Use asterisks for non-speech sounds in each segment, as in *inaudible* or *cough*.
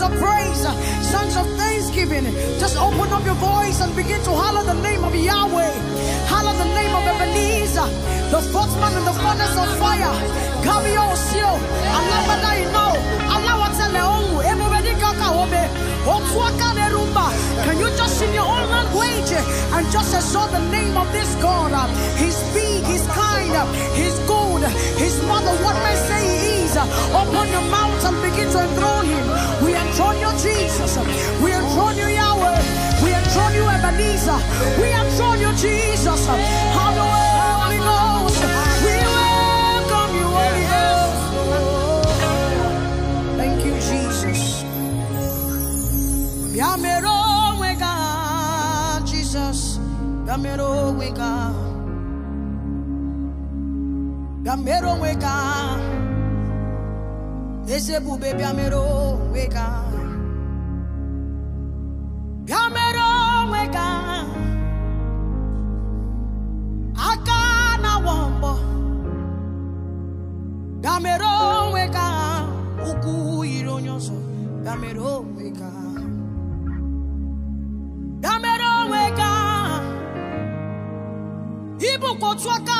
sons of praise, sons of thanksgiving. Just open up your voice and begin to holler the name of Yahweh. Holler the name of Ebenezer, the man in the furnace of fire. Kami osio, alabada Allah alawatele ongu, emuredi kaka obe, otuaka Can you just in your own language and just exalt the name of this God? He's big, he's kind, he's good, he's mother, what may say he is praise. Uh, open your mouth and begin to enthrone him. We enthrone you, Jesus. We enthrone you, Yahweh. We enthrone you, Ebenezer. We enthrone you, Jesus. Holy Ghost. We welcome you, Holy Thank you, Jesus. Yamero wega, Jesus. Yamero wega. Yamero wega. Ese bube biamero weka Biamero weka Aka na wombo Biamero weka Uku ironyoso Biamero weka Biamero weka Ibu kotuaka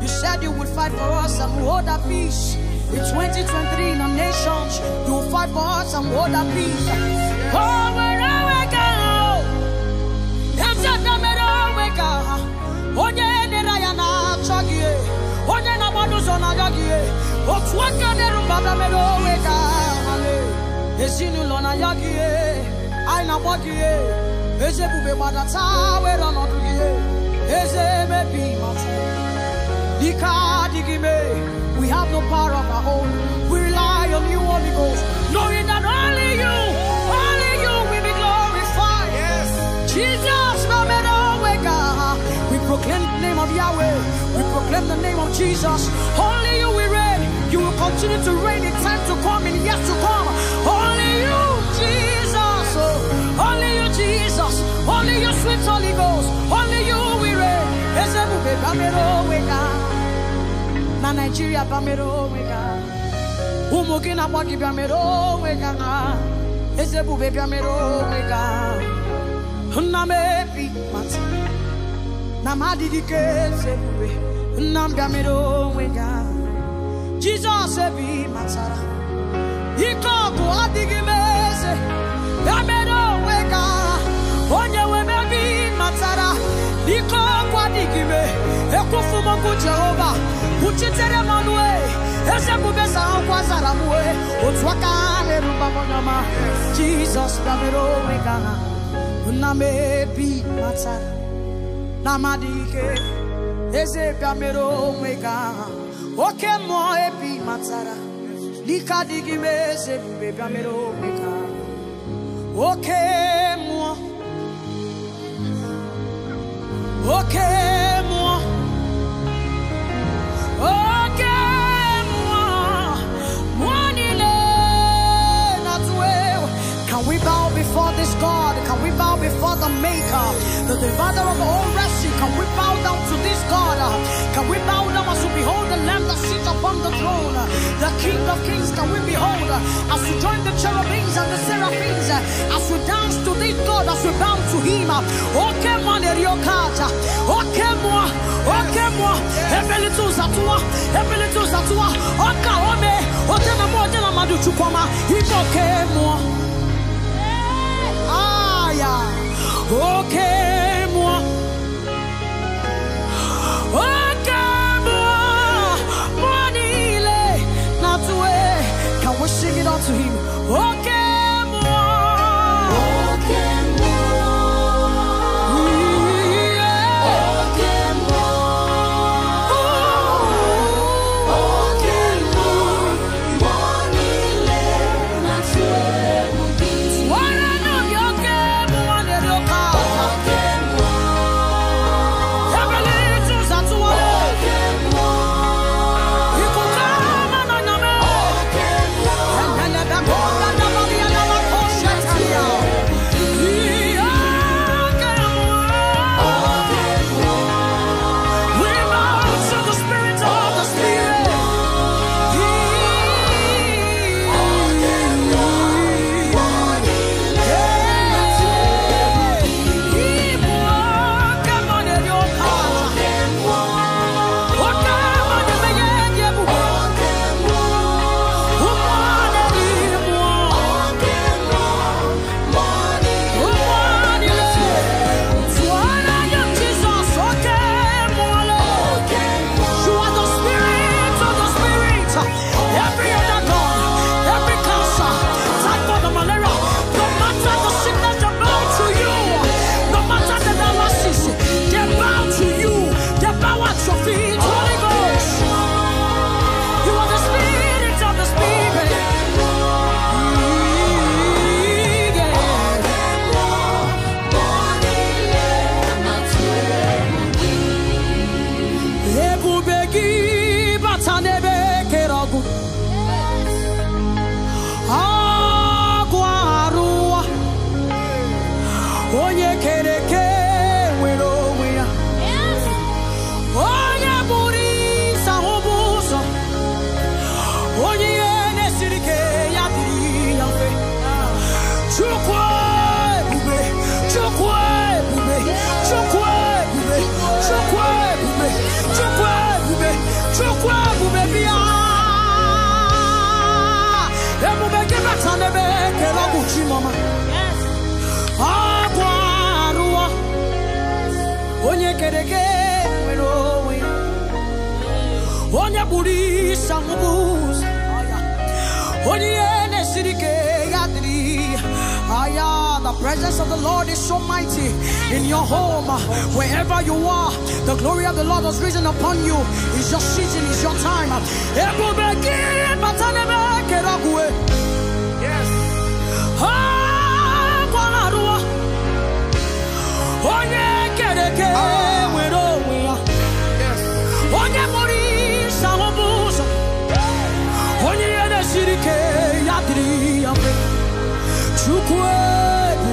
You said you would fight for us and hold our peace. In 2023, in our nations, you will fight for us and hold our peace. Oh, wherever we go, i a so damn it, oh, Oh, yeah. we have no power of our own we rely on you holy ghost knowing that only you only you will be glorified yes jesus bablamelo weka we proclaim the name of yahweh we proclaim the name of jesus only you will you will continue to reign in time to come and years to come. Only you, Jesus. Oh, only you, Jesus. Only Your sweet Holy Ghost. Only you we reign. Na Nigeria Bamero Wega. Ụmụ gị na-agba gị bịamere onwe ga na ezebube bịamere onwe ga nna m ebi mata na m adịghị ka ezebube nna jesus ebe ị matara ike ọgụ adịghị m eze ya mere onwe onye nwere ebe ị matara ike ọgụ adịghị m e. ekwufu m okwu jehova kwuchitere m e. eze bube sahụkwa zara m e. otu aka ha na-eruba jesus ọma ya mere onwe gị agha nna m ebe ị matara na amadị oke matara oke oke oke can we bow before this God can we bow before the maker, the divider of all rescue? Can we bow down to this God? Can we bow down as we behold the Lamb that sits upon the throne, the King of Kings? Can we behold as we join the cherubims and the seraphims, as we dance to this God, as we bow to Him? Okay, man, Okay, moi, okay, moi, every little satua, every little satua, okay, sirike yadri aya the presence of the lord is so mighty in your home wherever you are the glory of the lord has risen upon you it's your season it's your time yes Oh, yeah, get it, get it.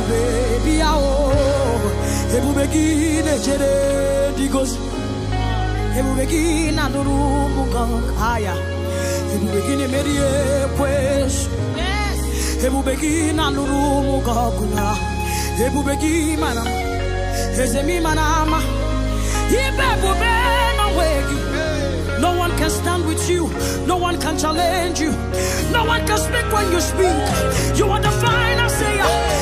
baby yao Hebu beki ne chere digos Hebu beki na nuru mukang haya Hebu ne merie pues Hebu beki na nuru mukang kuna Hebu beki mana Hezemi manama Ibe bube na wegi no one can stand with you. No one can challenge you. No one can speak when you speak. You are the final sayer.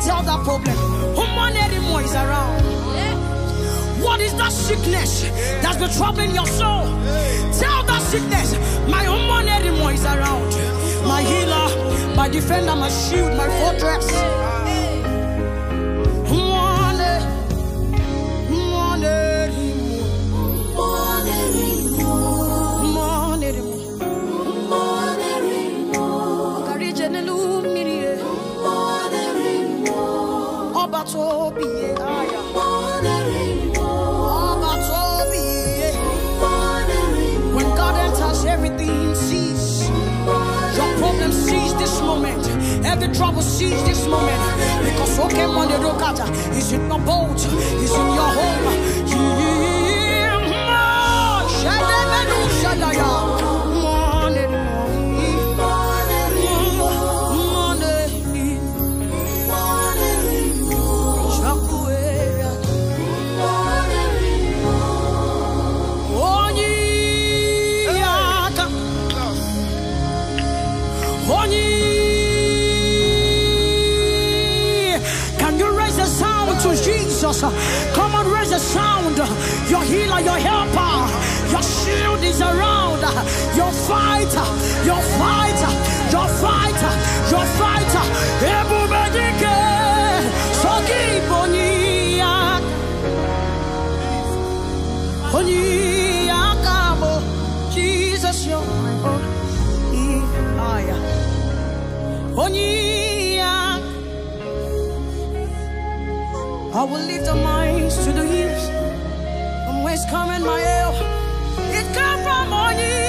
Tell that problem. who money anymore is around. What is that sickness that's been troubling your soul? Tell that sickness, my human anymore is around. My healer, my defender, my shield, my fortress. the trouble, seize this moment. Because Okemon the Dokata is in your boat, is in your home. fighter, your fighter, your fighter, your fighter. Ebubedike, sokibonia, oniakamo. Jesus, you're my own. Onia. I will lift up my eyes to the hills. From whence coming my help? It comes from on you.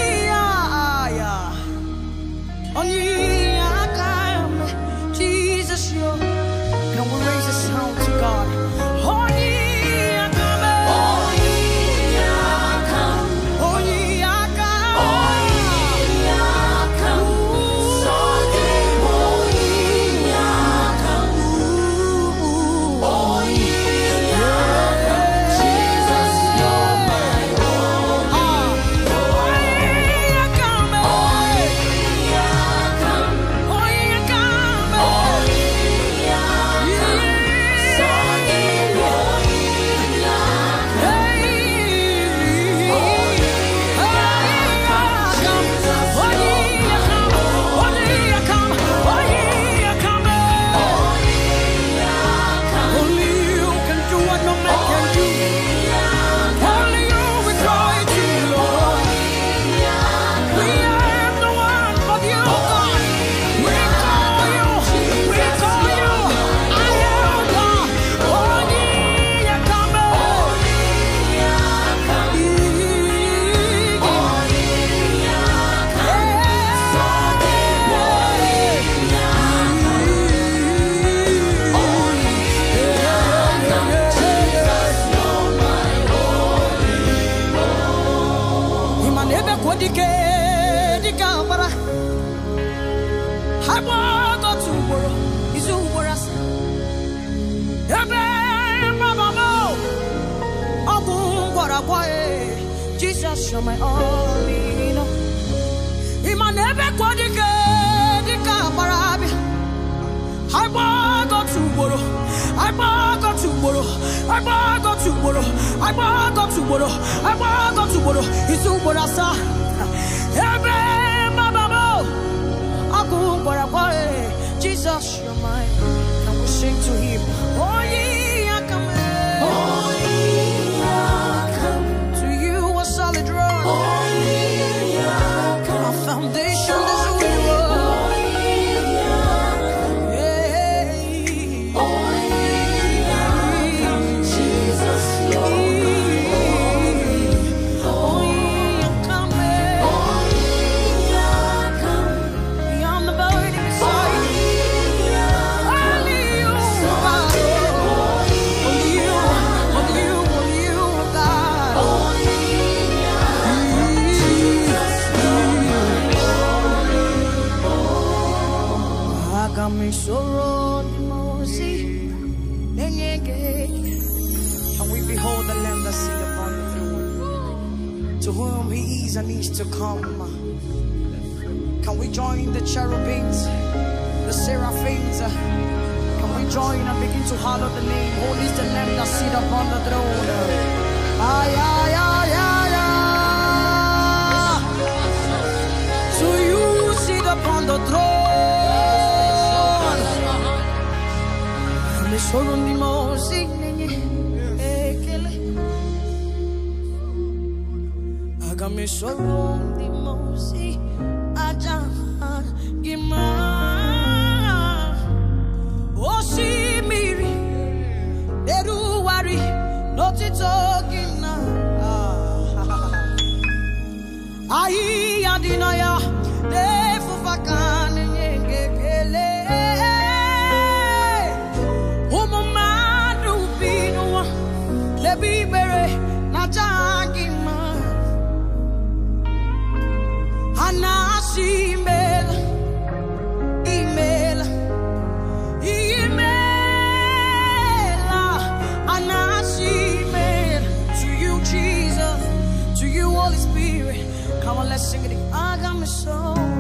Ebe mbabamo, ogun gwarakwai, Jesus you're my only love. Iman ebe kwadike, dika barabi. Agbago tugboro, agbago tugboro, agbago tugboro, agbago tugboro, agbago tugboro, isu ugboro asaa. Ebe mbabamo, ogun gwarakwai, Jesus you're my, and we sing to him. King of Amesoro mimosi nenye ekele Agamesoro mimosi ajahan gima Oshimiri oh, Neruwari notitogina Ayi adinaya defufaka I got my soul.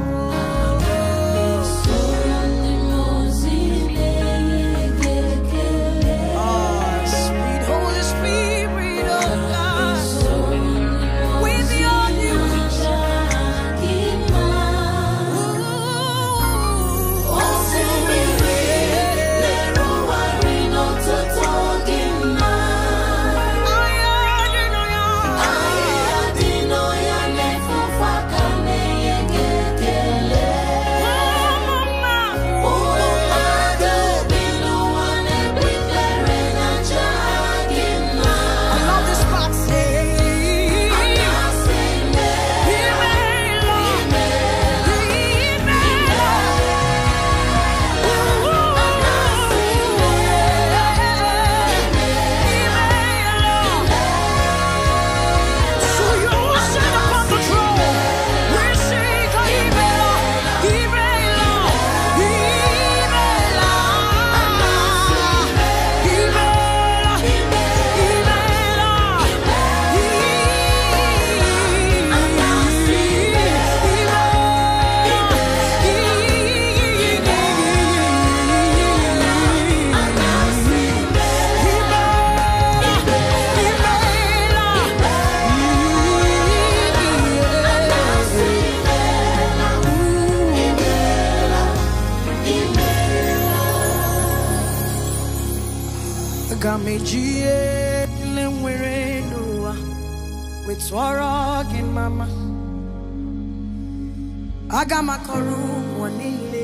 aga m akọrọ ụwa niile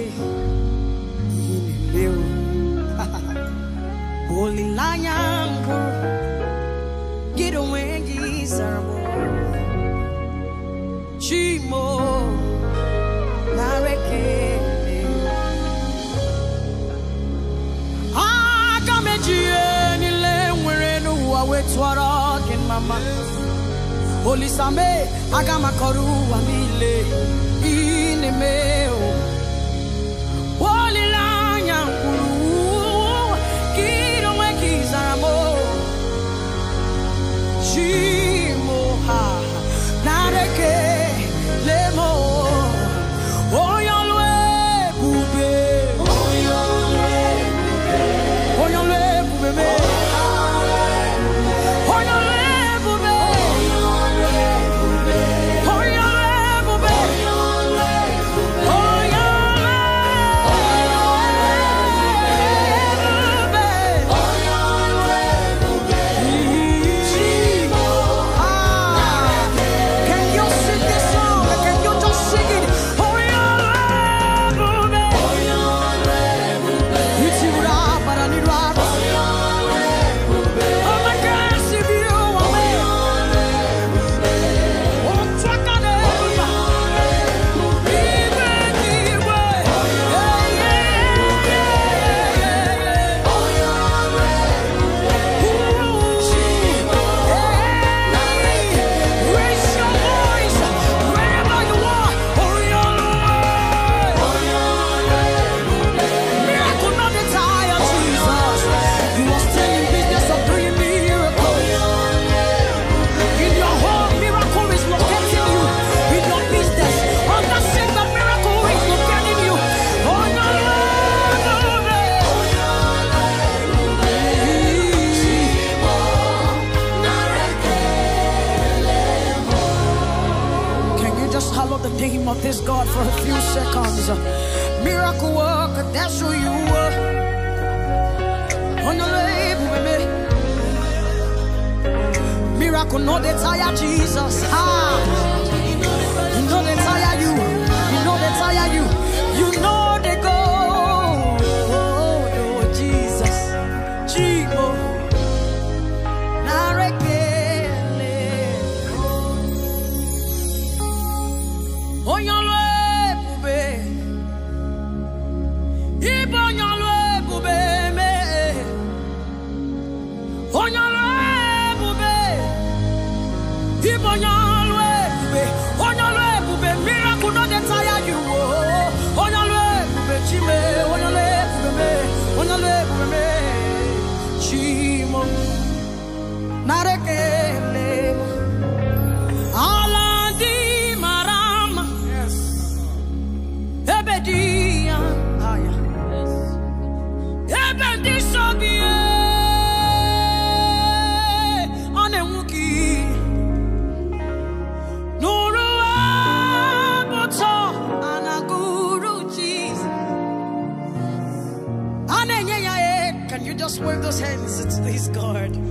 ihe na-eme *laughs* olileanya mbụ gị onwe gị zarabụ chimo nareke aga m eji ihe niile nwere n'ụwa wee tụọrọ gị mama olisame aga m akọrọ ụwa niile meu 寂寞。wave those hands. It's, he's God.